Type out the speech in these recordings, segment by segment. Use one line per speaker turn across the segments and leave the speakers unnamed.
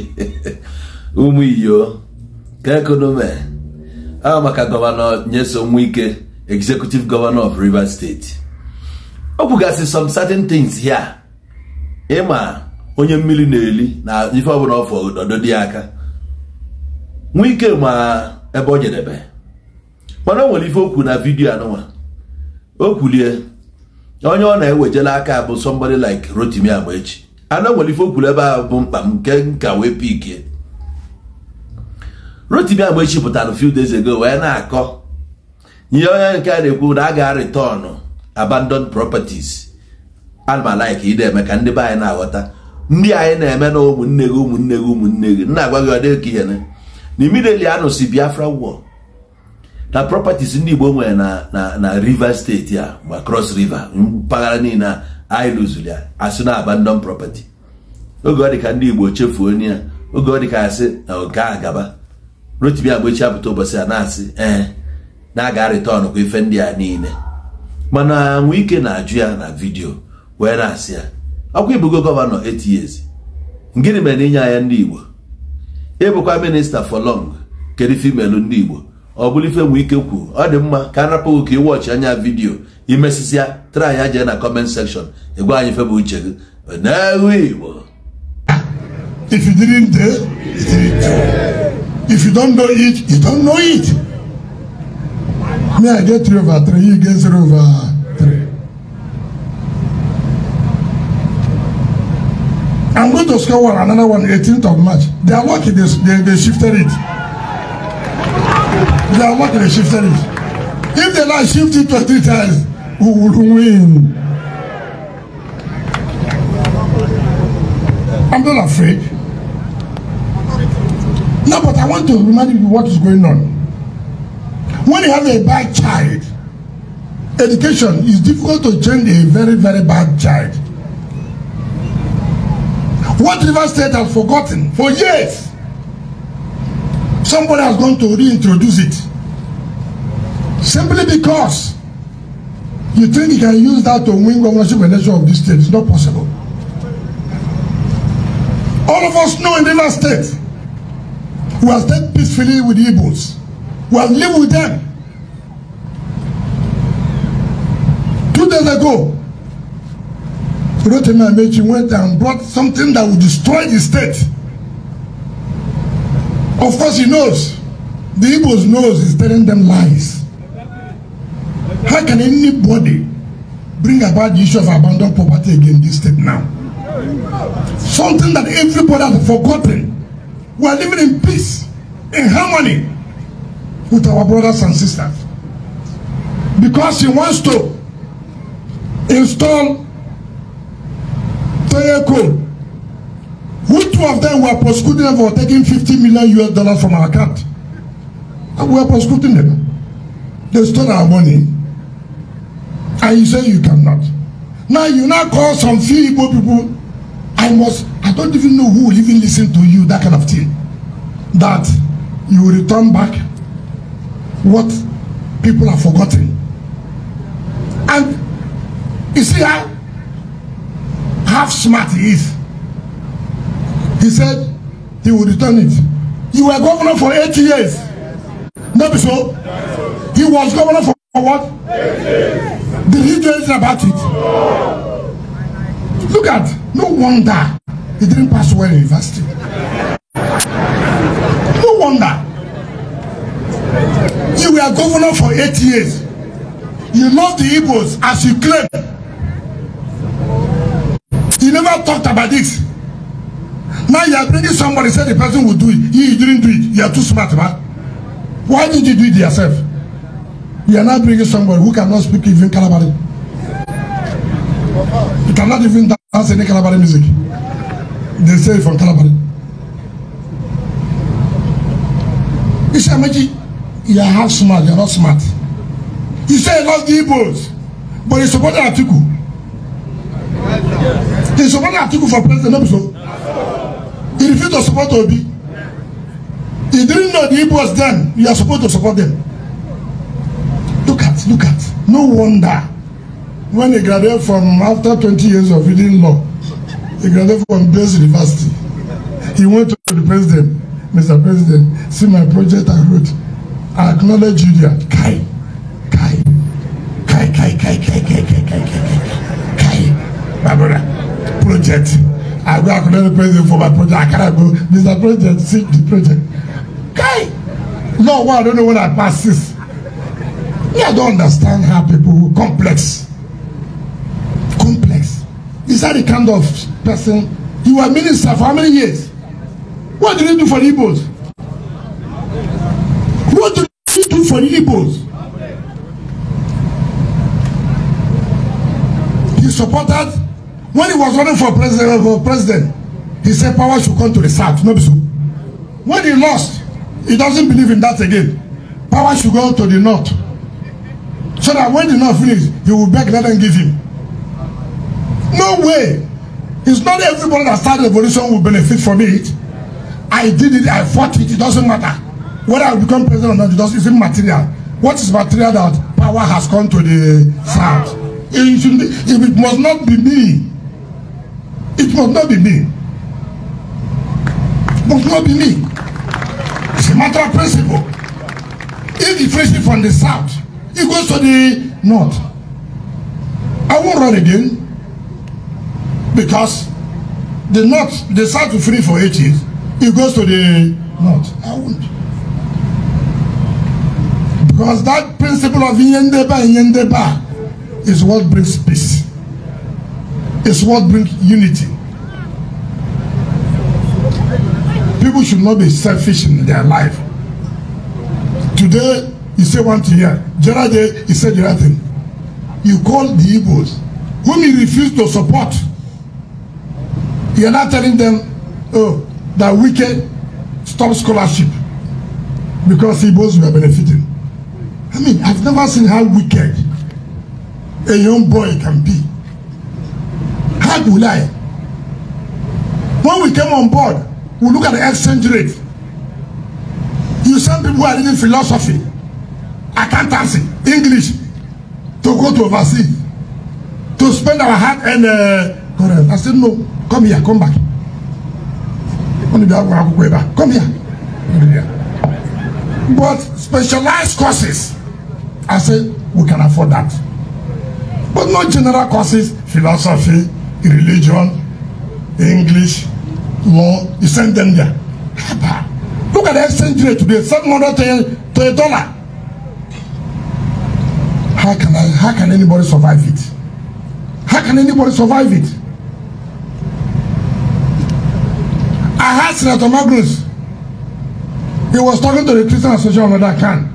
ụmụ iyo ka ekonomi a maka gọvanọ nyeso nwike executive governor of Rivers State ọ kwugasị some certain things here ịma onye mmiri na-eli na ife ọbụla ọfọ ọdọ dị aka nwike ma ebe o jedebe mana o nwere ife okwu na vidio anụnwa o kwulie onye ọ na-ewejela aka bụ somebody like Rotimi echi. ana nwere enwere ife okwuru ebe bụ mkpa m nke nka wee pikie rotimi agba echi pụtara few days ago wee na-akọ ihe onye nke a na-ekwu na a ga-arịtọnụ abandoned properties ana m alaiki ide eme ka ndị be anyị na-aghọta ndị anyị na-eme na ụmụnne gị ụmụnne gị ụmụnne gị nna agwa gị ọ dịka ihe na imideli anụ si Biafra wo na propertis ndị Igbo nwere na na Rivers steeti a ma Cross River mpaghara niile a anyị lụzuru ya asị na aba ndọm property oge ọ dị ka ndị Igbo chefuo onye ya oge ọ dị ka asị na nke a gaba rotibi agba echi apụta ụbọchị a na-asị ee na-aga rịtọn kwa ife ndị a niile mana nwee ike na-ajụ ya na vidiyo wee na-asị ya ọkwa ibugo gọvanọ 8 years gịnị mere na inye anya ndị Igbo ịbụkwa minista for long kedu femelu ndị Igbo ọ bụrụ ife nwee ike kwuo ọ dị mma ka a napụghị ka ịwọchị anya vidiyo imesisia try ya jee na comment section ịgwa anyị febe uche gị n'ewu igbo if
you didn't dare you didn't dare if you don't know it you don't know it me i get three over three you get zero over three i'm going to score one another one 18th of march they are lucky they, they, shifted it they are lucky they shifted it if they now shift it 23 times who will win. I'm not afraid. No, but I want to remind you what is going on. When you have a bad child, education is difficult to change a very, very bad child. What River State has forgotten for years, somebody has gone to reintroduce it simply because You think you can use that to win governorship election of this state? It's not possible. All of us know in Rivers State, we have stayed peacefully with the Igbos. We have lived with them. Two days ago, Rotimi Amechi went and brought something that would destroy the state. Of course, he knows. The Igbos knows he's telling them lies. How can anybody bring about the issue of abandoned property again this state now? Something that everybody has forgotten. We are living in peace, in harmony with our brothers and sisters. Because he wants to install Toye Code. Who two of them were prosecuted for taking 50 million US dollars from our account? And we are prosecuting them. They stole our money and you say you cannot now you now call some few igbo people i must i don't even know who will even lis ten to you that kind of thing that you will return back what people have forgotten and you see how half smart he is he said he will return it you were governor for eight years no be so he was governor for what Did he do anything about it? Look at, no wonder he didn't pass well in university. No wonder. You were governor for eight years. You love the Igbos as you claim. You never talked about this. Now you are bringing somebody, said the person will do it. He didn't do it. You are too smart, man. Why did you do it yourself? You are not bringing somebody who cannot speak even Calabari. You cannot even dance any Calabari music. They say from Calabari. He said, Maji, you are half smart, you are not smart. He said, love the Igbos, but he supported Atiku. He supported Atiku for president, not so. He refused to support Obi. He didn't know the Igbos then, you are supposed to support them look at. No wonder when he graduated from, after 20 years of reading law, he graduated from best University. He went to the president, Mr. President, see my project I wrote. I acknowledge you Judea. Kai, Kai, Kai, Kai, Kai, Kai, Kai, Kai, Kai, Kai, Kai, Kai, my brother, project. I go acknowledge the president for my project. I cannot go. Mr. President, see the project. Kai! No, well, I don't know when I pass this. Me, I don't understand how people complex. Complex. Is that the kind of person you were minister for how many years? What did you do for the Igbos? What did you do for the Igbos? He supported when he was running for president for president, he said power should come to the south, no be so. When he lost, he doesn't believe in that again. Power should go to the north so that when the man finish you will beg let them give him no way it's not everybody that start revolution will benefit from it i did it i fought it it doesn't matter whether i become president or not it doesn't it's immaterial what is material that power has come to the south it be it, must not be me it must not be me it must not be me it's a matter of principle if the person from the south it goes to the north. I won't run again because the north, the south will free for eight years. It goes to the north. I won't. Because that principle of Yendeba and Yendeba is what brings peace. It's what brings unity. People should not be selfish in their life. Today, you say one thing here. Jaraje, he said the other thing. You call the Igbos, whom you refuse to support. You are not telling them, oh, that wicked stop scholarship because Igbos were benefiting. I mean, I've never seen how wicked a young boy can be. How do I? When we came on board, we look at the exchange rate. You send people who are reading philosophy accountancy english to go to overseas to spend our hard and uh, i said no come here come back come here but specialized courses i say we can afford that but not general courses philosophy religion english law you send them there look at the exchange rate today seven hundred to a dollar how can I, how can anybody survive it? How can anybody survive it? I had Senator Magnus. He was talking to the Christian Association of that camp.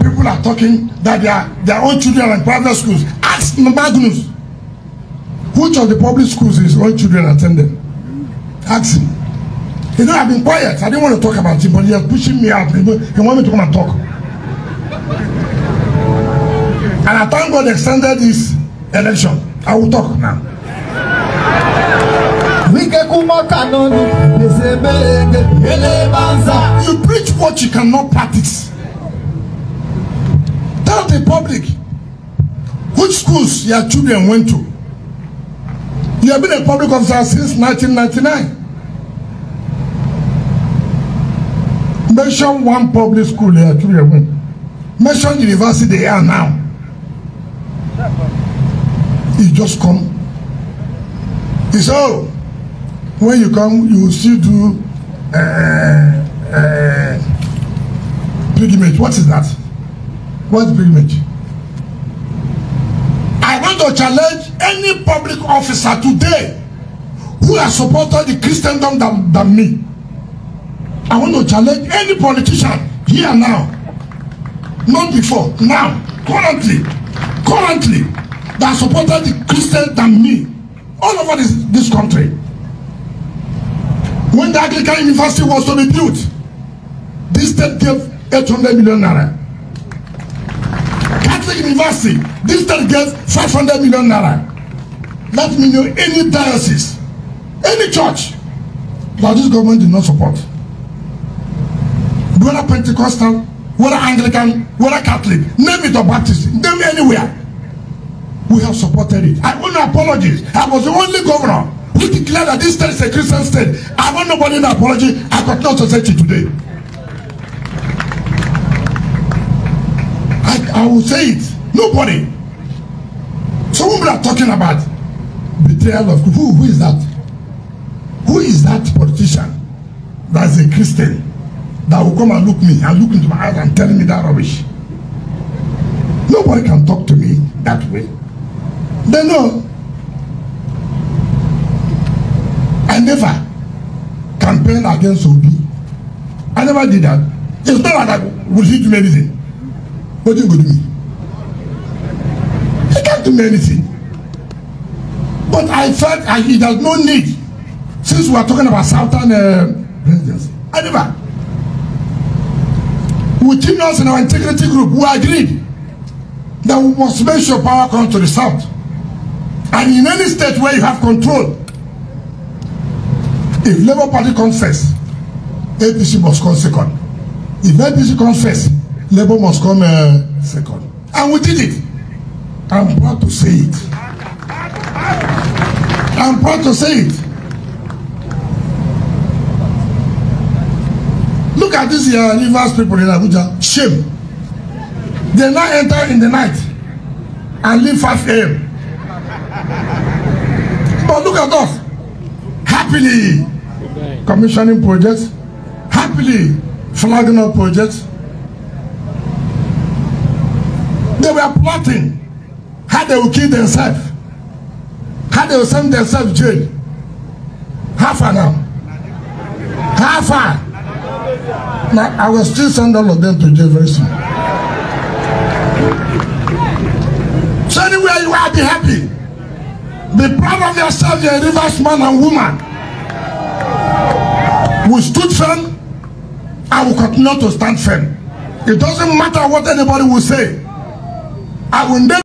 People are talking that their, their own children are in private schools. Ask Magnus. Which of the public schools his own children attended? Ask him. You know, I've been quiet. I didn't want to talk about it, but he was pushing me out. He want me to come and talk. And I thank God extended this election. I will talk now. You preach what you cannot practice. Tell the public which schools your children went to. You have been a public officer since 1999. Mention one public school your children went. Mention university they are now he just come he say oh when you come you still do uh, uh, pilgrimage what is that what pilgrimage i want to challenge any public officer today who has supported the christendom than, than me i want to challenge any politician here now not before now currently currently that supported the Christian than me all over this, this country. When the Anglican University was to be built, this state gave eight hundred million naira. Catholic University, this state gave five hundred million naira. Let me know any diocese, any church that this government did not support. Whether Pentecostal, whether Anglican, whether Catholic, name it or Baptist, name anywhere. We have supported it. I want no apologies. I was the only governor who declared that this state is a Christian state. I want nobody to apology. I got no society today. I, I will say it. Nobody. So whom we are talking about? Betrayal of who? Who is that? Who is that politician that is a Christian that will come and look me and look into my eyes and tell me that rubbish? Nobody can talk to me that way. They know I never campaign against Obi. I never did that. It's not like I will he do anything. What do you go do me? He can't do me anything. But I felt I, he does no need since we are talking about Southern uh, presidency. I never. With us in our integrity group, we agreed that we must make sure power come to the South. And in any state where you have control, if Labour Party comes first, APC must come second. If APC comes first, Labour must come uh, second. And we did it. I'm proud to say it. I'm proud to say it. Look at this uh, Rivers people in Abuja. Shame. They now enter in the night and leave 5 a.m look at us. Happily commissioning projects, happily flagging up projects. They were plotting how they will kill themselves, how they will send themselves to jail. How far now? How far? Now, I will still send all of them to jail very soon. So anywhere you are, be happy. Be proud of yourself, you're a Rivers man and woman. We stood firm and we continue to stand firm. It doesn't matter what anybody will say. I will never